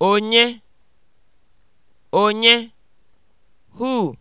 onye onye who